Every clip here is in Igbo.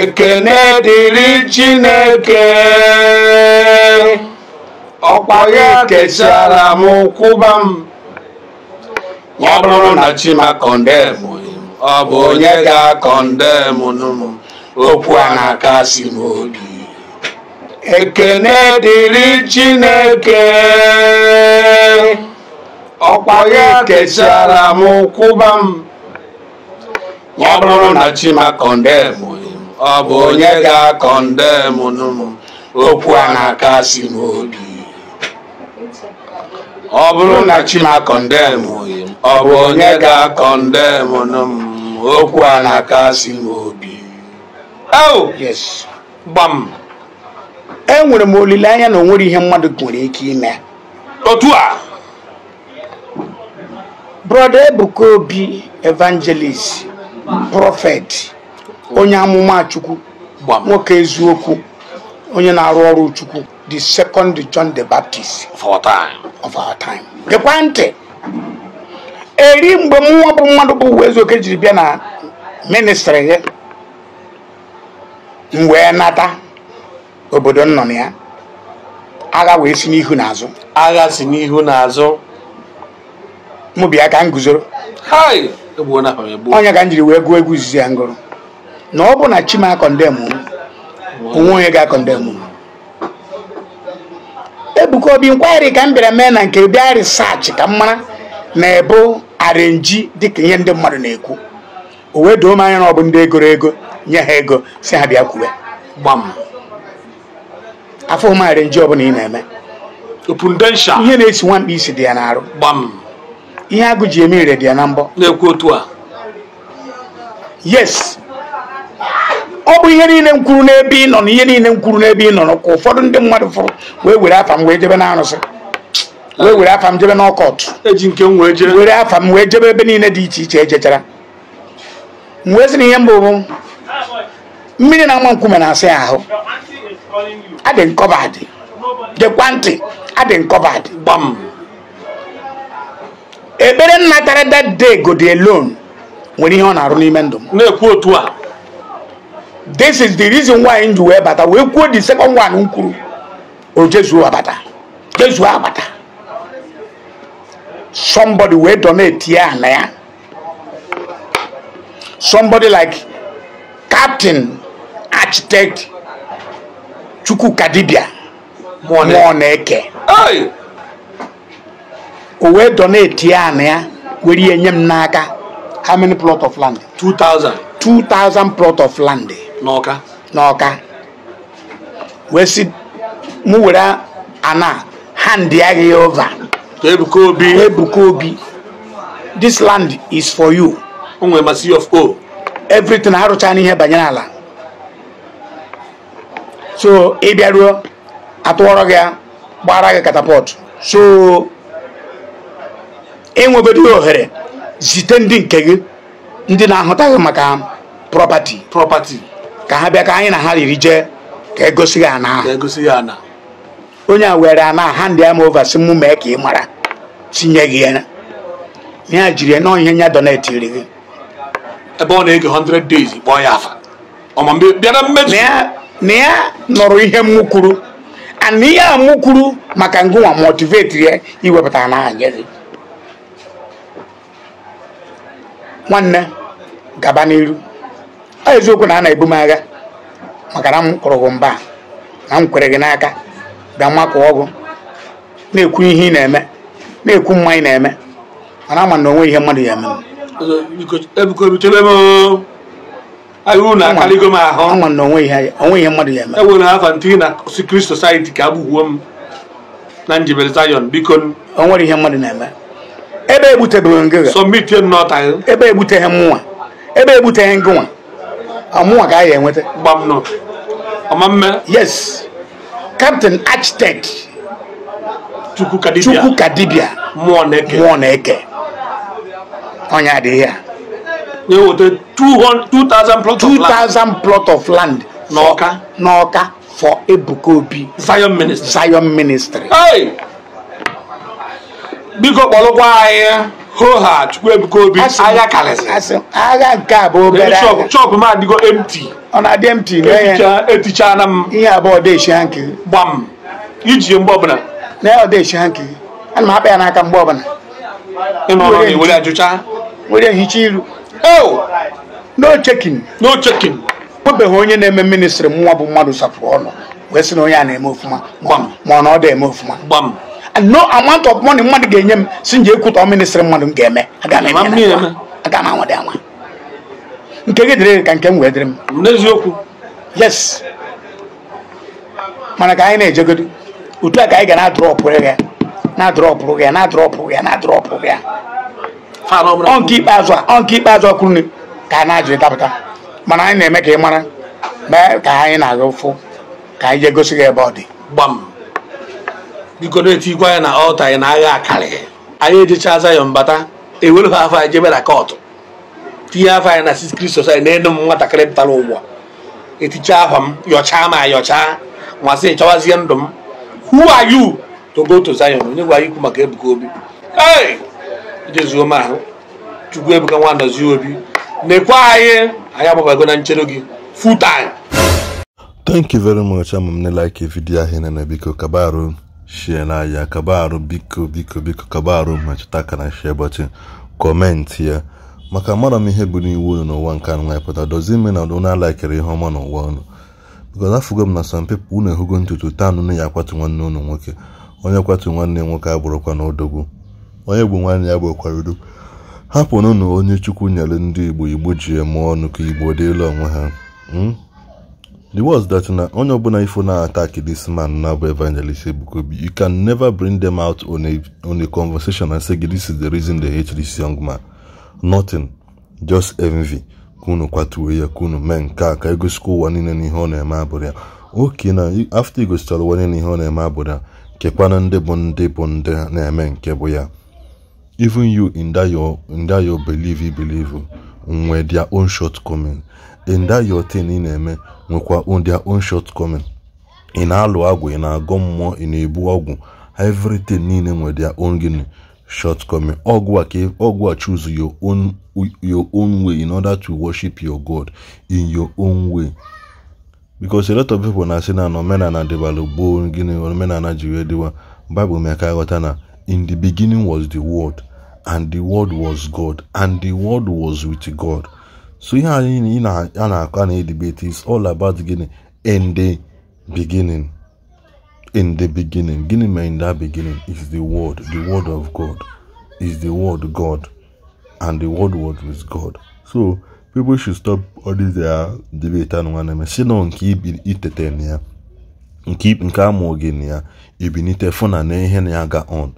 ekene dịrị chineke ọkwa ya kechara m kwụba m ọ bụrụ na chima kọndemụ ọ bụ onye ga-akọndemụ nụ okwu a na-akasi m obi ekene dịrị chineke ọkwa ya kechara m kwụba m ọ bụrụ na chima kọndemụ ọ bụ onye ga-akọndem nụ okwu a na-aka si n'obi ọ bụrụ na chimakọndem ọ bụ onye ga-akọndem m okwu a na-aka si n'obi gbam enwere m olileanya na o nwere ihe mmadụ nwere ike ime otu a brọda ebuka obi evangelist prọfet onye amụma chukwu nwoke eziokwu onye na-arụ ọrụ chukwu the second john the baptist of our time of our time ntị eri mgbe mụnwa bụ mmadụ bụ uwe eziokwu jiri bịa na ministri ya m wee nata obodo m nọ ya agha wee si n'ihu n'azụ agha si n'ihu n'azụ mụ bịa ka m guzoro onye ka m jiri wee gụọ egwu izizi ya ngụrụ na ọ bụ na chima akọndem onwe onye ga-akọndem ebuka obi nkwari ka m bịara mee na nke bịa risaachị ka m mara na ebu arenji dịka ihe ndị mmadụ na-ekwu o wee doo m anya na ọ bụ ndị egoro ego nye ha ego si ha bịa kwuwe gbam afọ m arenji ọbụla ị na-eme ihe na-esi nwamkpa isi dị ya n'arụ gbam ihe agụ ji eme ire dị ya na mbọ na-ekwu otu a yes ọ bụ ihe niile m kwuru n'ebe ị nọ na ihe niile m kwuru n'ebe ị nọ ka ụfọdụ ndị mmadụ fụrụ wee were afa m wee jebe na wee were afa m jebe n'ọkọt ọkọtụ were afa m wee jebe ebe niile dị iche iche ejechara m wee sị na ihe mbụ bụ mmiri na-ama nkume na-asị ahụ adị nkọbadị dekwa ntị adị nkọbadị gbam ekpere nnatara dat day go dey alone nwere ihe ọ na-arụ n'ime ndụ m na-ekwu otu a this is the reason why ji wee bata wee kwuo the second one nkuru kwuru o jezuo abata jezuo abata somebody wee donate ya na ya somebody like captain architect chukwuka ma ọ na-eke o wee donate ya na ya were ihe nye m n'aka how many plot of land 2000 2000 plot of land n'ọka n'ọka wee si mụ were ana handị ya gị over ebuka obi ebuka obi this land is for you o nwere of o everything ha rụcha n'ihe banyere ala so ị bịaruo atụọrọ gị gbara gị katapọt so enwebedo ohere zite ndị nke gị ndị na-ahụtaghị maka propati propati ka ha bịa ka anyị na ha riri jee ka egosi ya ana ahụ e onye a were ana ha ndị ama ova si mụ mee ka ị mara tinye gị ya ya jiri na ihe ya iri gị ebe ọ na-ege 100 days kpọọ ya afa na ya nọrọ ihe mụ kwuru ana ihe a mụ maka ngụwa motivate ya iwepụta na nwanne gaba n'iru ọ eziokwu na a na-ebu m agha maka na m kụrụ mba na m kwere gị n'aka bịa mmakọ ọgụ na-ekwu ihe ị na-eme na-ekwu mma ị na-eme mana ama na ihe mmadụ ya eme na onwe ihe mmadụ ya eme na society ka na ihe mmadụ na-eme ebe egbutebeghị ngịga ebe egbuteghị ebe egbuteghị ngịnwa ọmụ a ka enweta yes captain architect chukwu kadibia chukwu kadibia mmụọ na-eke mmụọ na-eke onye adịghị ya nye wote 2000 plot plot of land n'ọka n'ọka for ebuka obi zion ministry zion ministry biko kpọrọkwa anyị hoha Chukwuebuka Obi agha karịsịrị agha nke a bụ obere agha chọpụ m adịgo emti ọ na-adị emti etichana m ihe abụọ dechia nke gbam iji mgbe ọbụla na ya ọdechia nke ana m akpa ya n'aka mgbe ọbụla were ajụcha were hicha iru oh! no chekin no chekin nwebeghị onye na-eme ministri nwa bụ mmadụ sapụ ọnụ wee sị na onye a na-eme ofụma ma ọ na ọ dị eme ofụma gbam no amount of mmadụ ga-enye m si nje ekwutọ ministrị mmadụ m ga-eme aga m anwa dị anwa nke gị ka nke m wee m n'eziokwu yes mana ka anyị na-ejegodi utu a ka anyị ga na-adrọpụ ya na-adrọpụ ya na na ọ ọ ka a na mana anyị na-eme ka mara ka anyị na-aga ka anyị jee gosi ga ebe ọ dị biko na-etikwa ya na ọta ya na agha akarị anyị ejecha aza bata mbata ewere ha afọ anyị jebe na kọtụ tinye afọ anyị na six kristo na enu m nwatakịrị pụtara ụwa eticha ahwa m yọchaa ma yọchaa masị chọwazie ndụ m who are you to go onye gwara ikwu maka Ebuka Obi ijezuo m ahụ Chukwu Ebuka nwa Ndozie Obi nekwa anyị anyị agbabago na nchere gị full thank you very much ama m like video ahụ na biko kabaru shie n'ahịa kaba arụ biko biko biko kaba arụ mmetụta aka na kọmentị ya maka mara m ihe bụ n'iwu unu n'ụwa nke anụ pụta dozie ime na unu alaikere ihe ọma n'ụwa unu bikoz afụgo m na some people unu ehugo ntutu taa nụ ya akwatu nwanne unu nwoke onye kwatu nwanne nwoke abụrụkwa na odogwu onye bụ nwanne ya bụkwara udo hapụnụ na onye chukwu nyere ndị igbo igbo ji eme ọnụ ka igbo dịla onwe ha hmm? The words that na onye ọbụla ifo na attack this man na bụ evangelist Ebukobi you can never bring them out on a, on a conversation and say this is the reason they hate this young man. Nothing. Just envy. kunu kwatuwe ya kunu mee nke a ka egosikwa ụwa niile ihe ọ na-eme abụrụ ya oke na afta igosichara ụwa niile ihe ọ na-eme abụrụ ya kekwana ndị bụ ndị bụ ndị na-eme nke bụ ya even you in that your believe you believe nwee their own shortcoming in that your thing ị na-eme nwekwa their own shortcoming ị na-alụ agwụ ị na-agọ mmụọ ị na-ebu ọgwụ everything niile nwere their own gịnị shortcoming ọgwụ a ka ọgwụ a choose your own your own way in order to worship your god in your own way because a lot of people na say na omenala dịbalụ gboo gịnị omenala ji wee dịwa bible mee ka ghọta na in the beginning was the word and the word was God, and the word was with God. So ihe anyị in na-akọ na-edebate is all about beginning. in the beginning. In the beginning. Gịnị in that beginning is the word. The word of God is the word God. And the word was with God. So people should stop all this their uh, debate and one si na keep it na ya nke nke amụghị na ya ebinite fụ na na ihe na never ga on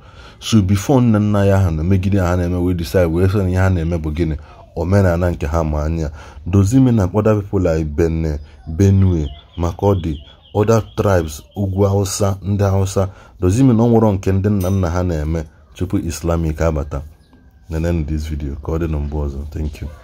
so bifo nna nna ya ha na megide ha na-eme wee decide wee sị na ihe ha na-eme bụ gịnị omenala nke ha ma anya dozimi na kpoda people like Benin Benue Makurdi oda tribes ugwu hausa ndị hausa dozimi na ọ nwụrọ nke ndị nna nna ha na-eme tupu islamic abata nene this video ka ọ dị na mgbe ọzọ thank you